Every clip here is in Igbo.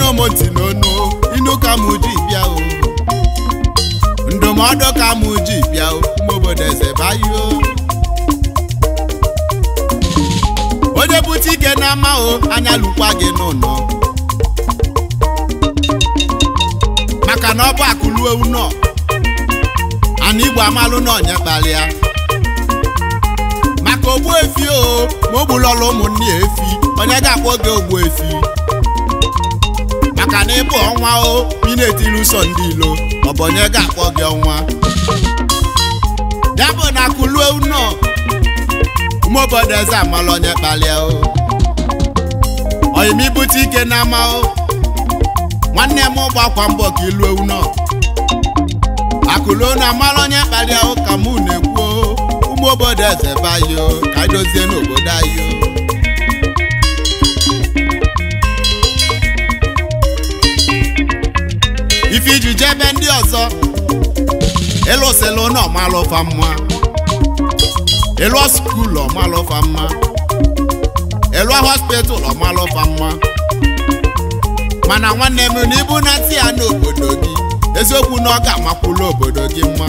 anụmụntị n'onu inu ka mụ ji bịa o ndụmọdụ ka mụ ji bịa o obodo eze O onye bute ike na ama o anya lụkwa gị n'ụlọ maka na ọ bụ akụluo unọ ana igbo amalụ n'ọnya kpalịa maka ogbu efi o ma o gbulọla ụmụnne efi onye ga-akpọ oge ogbu efi maka na ịbụ ọnwa o ị na-etiri ụsọ ndị ilo ọbọnye ga-akpọ gị ọnwa ya bụ na kuluo ụmụ obodo eze amala onye kpalịa o oyimibute ike na ama o nwanne m gbakwa mbọ ka iluo ụnọ akụluo na amala onye kpalịa o ka mụ na-ekwu ụmụ obodo eze bayo ka dozie n'obodo anyị o ife iji jee ebe ndị ọzọ elosela onye ọmalụfa mma elu skul ọmalụfa mma elu hospital ọmalụfa mma mana nwanne m na ibu na ya n'obodo gị eziokwu na ọ ga-amakwulu obodo gị mma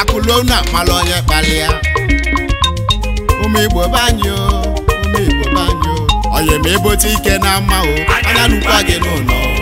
akụlu na amala onye kpalịa ụmụ igbo be anyị o ụmụ igbo ma ebote ike na mma o anya gị n'ụlọ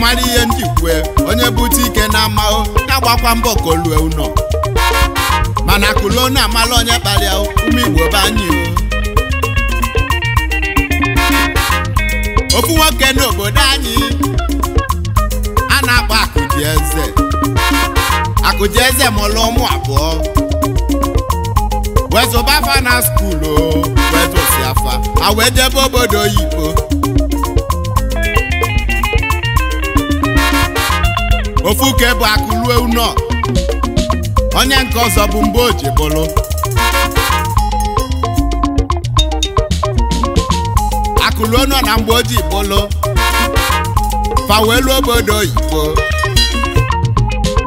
mara ihe ndị kwue onye bute ike na amahụ na-agbakwa mbọ ka olue ụlọ mana kulo na amala onye kpalịa ume igbo be anyị ofu nwoke n'obodo anyị a na-akpọ akụji eze akụji eze ụmụ abụọ wezụba afa na skuulu wezụsi afa a wee jebe obodo oyibo ofu ka e bụ akụ rue unọ onye nke ọzọ bụ mgbe o ji bụlụ akụluo nọ na mgbe o ji bụlụ fawelu obodo oyibo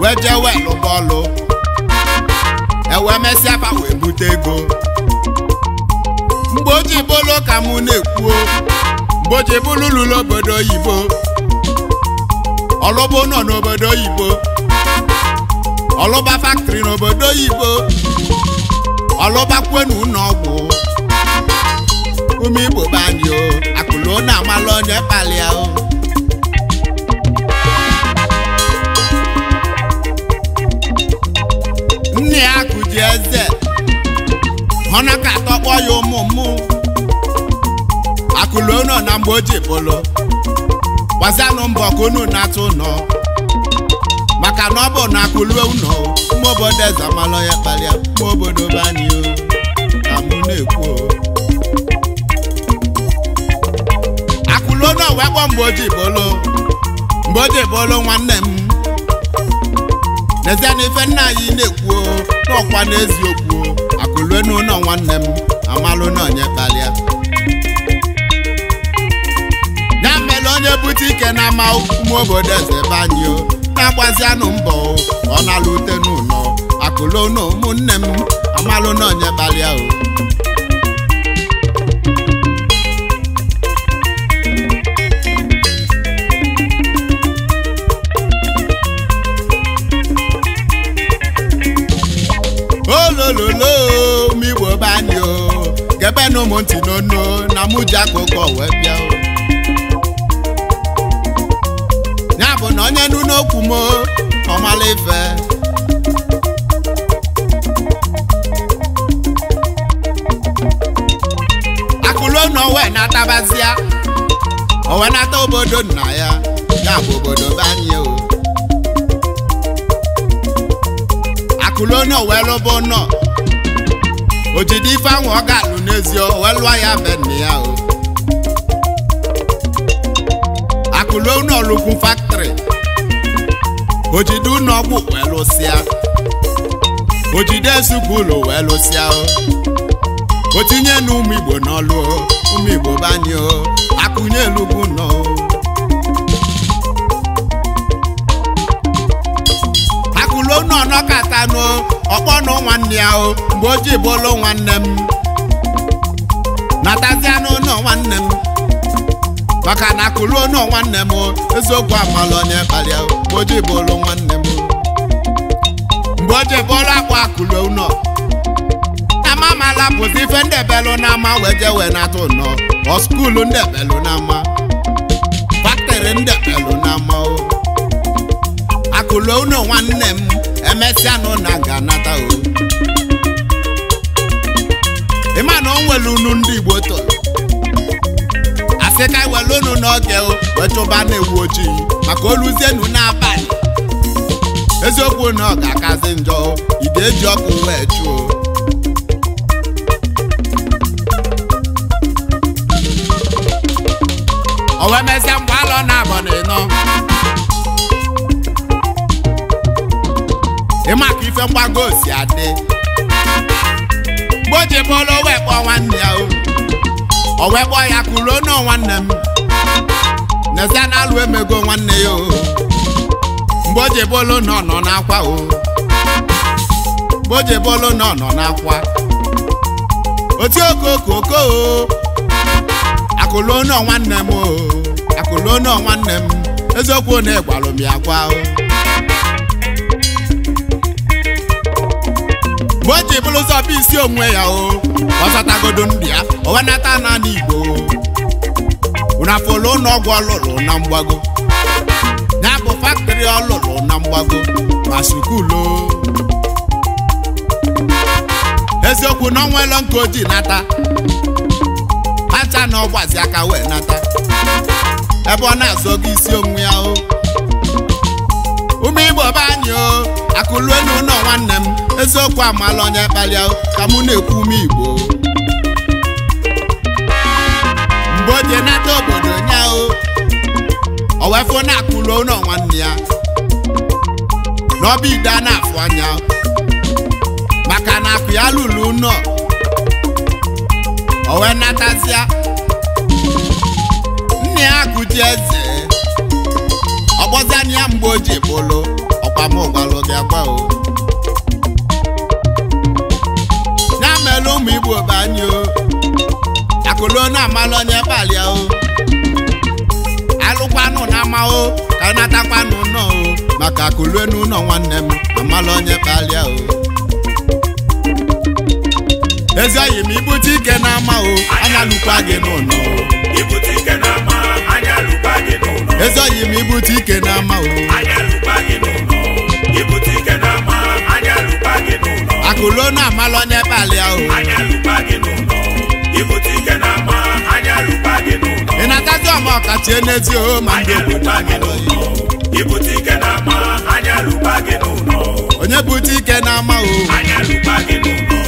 wee jee wee lụba ewee mesịa fa bute mgbe o ji bụlụ ka mụ na-ekwuo mgbe o ji bụlụ obodo oyibo ọlọba nọ n'obodo oyibo ọlọba faktịrị n'obodo oyibo ọlọba kwenu n'ọgwụ ume igbo be o akụlụ na amala onye kpalịa o nne ya kụji eze họna ka atọkpọ ya ụmụ mmụ akụlụ nọ na mgbe o ji gbazanụ mbọ ka unu na-atụ ụnọ maka na ọ bụ na akụlue ụnọ ụmụ obodo eze amalọ ya kpalịa ụmụ obodo be ka mụ na-ekwu akụlụ onye ọwa kpọ mgbe oji bolo mgbe oji bolo nwanne m n'ezie na ife nna anyị na-ekwu n'ọkwa n'eziokwu akụlue n'ụlọ nwanne m amalụ na onye kpalịa onye bute ike na ama ụmụ obodo eze banyo na-agbazianụ mbọ ọ na-alụ ute n'ụlọ akụlụnụ ụmụnne m amalụna onye gbalịa o olololo m igbo banyo gebe na ụmụ ntị n'onu na mụ ji akụkọ wee bịa o na onye nụ n'okwu m ọmala ife akụluo na owe na-atabazia owe nata obodo nna ya ya bụ obodo banye o akụluo na owe lụbụ nọ ojide ife ahụ ọ ga-alụ n'ezi owe lụọ ya be nna ya o akụluo na fak ojide ụlọ ọgwụ wee lụsịa ojide ezugbo ụlọ wee lụsịa otinye na ụmụ igbo n'ọlụ ụmụ igbo banye akụnye elugwu nọ akụlụ nọ nọkatanụ ọkpọ nụ nwanne ya o ji bụlụ nwanne m nwanne m maka na akụruo nu nwanne m eziokwu amala onye kpalịa mgbe oji bụrụ nwanne m mgbe oji bụrụ akpụ nọ. Ama amamala bụzi ife ndebelụ na ama weje wee na-atụ ụnọ ọ skuulu ndebelụ na ama baktịrị ndebelụ na ama o akụruo ụnọ nwanne m emesịanụ na ga n'ata o ịma na o nwere unu ndị Igbo tọrọ asị ka were unu n'oge wee chụba na-ewu ojii maka oluzienu n'abalị eziokwu na ọ ga-akazi njọ ị eji ọkụ wee chụọ owemezie mgbe alọ na abọ na ịnọ ịma ka ife mgbago si adị mgbe o ji wee nwanne ya o o wee gbọọ ya kụruo nọ nwanne m n'ezie na alụ emego nwanne ya o mgbe o jebe olu n'akwa o mgbe o jebe olu na ọ nọ nwanne m o akụluo nọ nwanne m eziokwu na ịgwalụ m ya o mgbe o ji bụrụ ụzọ bụ isi onwe ya o ọzọtagodo ndụ ya owenata n'ala Igbo na polo n'ọgwụ ọlụlụ na mgbago ya bụ faktịrị ọlụlụ na mgbago ma sukulo eziokwu na ọnwaelo nke ojii nata acha na ọgbazi aka wee nata ebe ọ na-azọgo isi onwe ya o ụmụ Igbo be anyị o elu ụlọ nwanne m eziokwu amala onye kpalịa ka mụ na-ekwu ume igbo mgbe o nata obodo nyahụ Owefu na-akụlu ụlọ nwanne ya n'ọba ide na-afụ anya maka na akụ ya lụlụ nọ. owe natazia nna ya akụji eze ọgbọzania mgbe o ji bụlụ amụgwalụ gị akwa o ya mere ụmụ igbo banye o Akụlụ na amalụ onye balị o alụkwanụ na amahụ ka natakwanụ nọ o maka akụlo n'ụlọ nwanne m amalụ onye balị o ezi oyi m ibute ike na ama o anya lụkwa gị n'ụlọ ezi oyi m ibute ike na ama o ibuti kena ma anya lupa gị n'ụlọ akụlo na amalụ onye balị ahụ anya lupa gị n'ụlọ ibuti kena ma anya lupa gị n'ụlọ ị na-atazi ọma ọkachi enezi o ma anya lupa gị n'ụlọ ibuti kena ma anya lupa gị n'ụlọ onye bute ike na ama o anya lupa gị n'ụlọ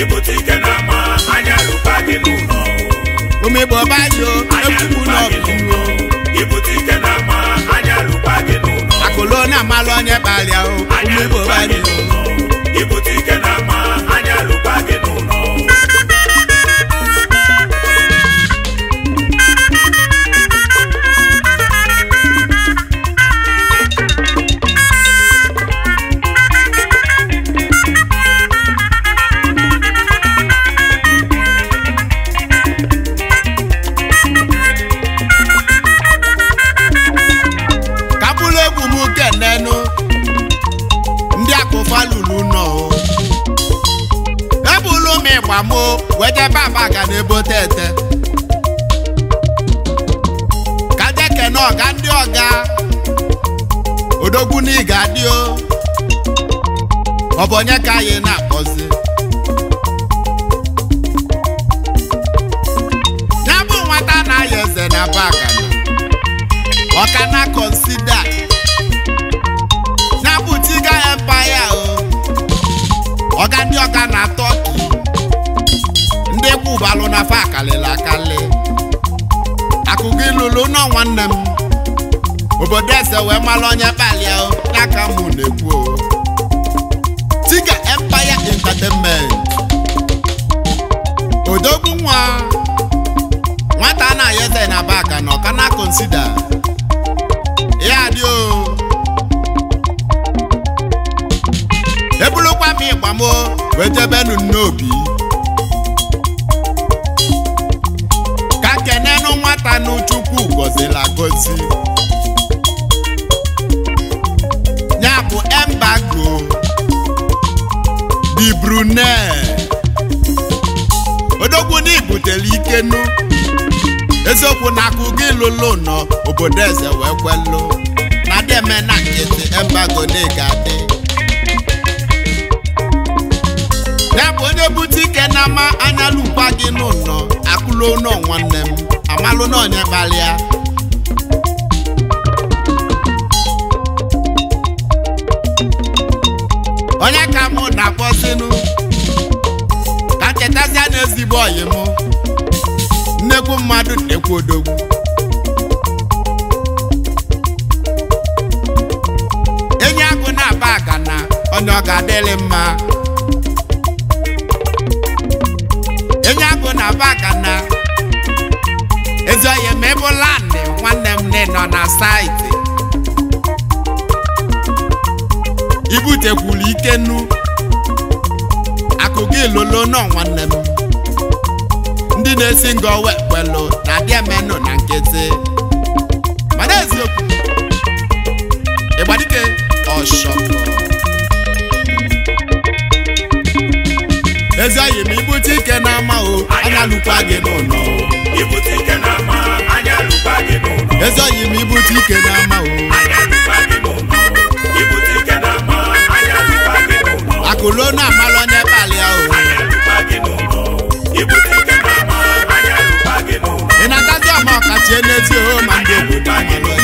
ibuti ike na ama anya lupa gị n'ụlọ nye kpalịa o ụmụ Igbo balịa o na ị ga-adị o ọ bụ onye ka anyị na-akpọzi ya bụ nwata na-ayọ eze na bakana ọka na kọnsida ya bụ tiga empaya o ọga ndị ọga na tọki ndị kwubalụ na fa akalịla akali akụkọ ilulu nọ nwanne m obodo eze wee mara onye kpalia n'aka mụ na-ekwu Empire Entertainment odogwu nwa nwata na ayeze na baka na ọka konsida ya dị o ebulukwa m kwamo wee jebenu n'obi ka kenenu nwata n'uchukwu gọzila gozi Brunei odogwu na ibutele ikenu eziokwu na akụ gị lụlụ nọ obodo eze wee kwelụ na deme na nkịtị embago na-egadị ya bụ onye bute ike na ama anyalụkwa gị n'ụlọ akụlụ nọ nwanne m amalụ na onye kpalịa onye ka mụ na-akpọsinu ka nchetazie na ezigbo oyi m nnekwu mmadụ ekwu odogwu enyi agụ na-aba aka na onye ọ ga-adịrị mma enyi agụ na-aba aka na ezi oyi ma ịbụla nwanne m nọ na saịtị ibutekwulu ike nnu akụ gị lolo nọ nwanne m ndị na-esi nga owe kpelu na abịa menụ na nkịtị mana eziokwu ịgbadike ọshọkọ ezi oyi ma ibute ike n'ama o anya alụkwa gị n'ụlọ ezi ibute ike n'ama o ọnụ amalụ n'ebe alị ahụ ị na-agazi ọma ọkachi n'ezi oho ma ndị obodo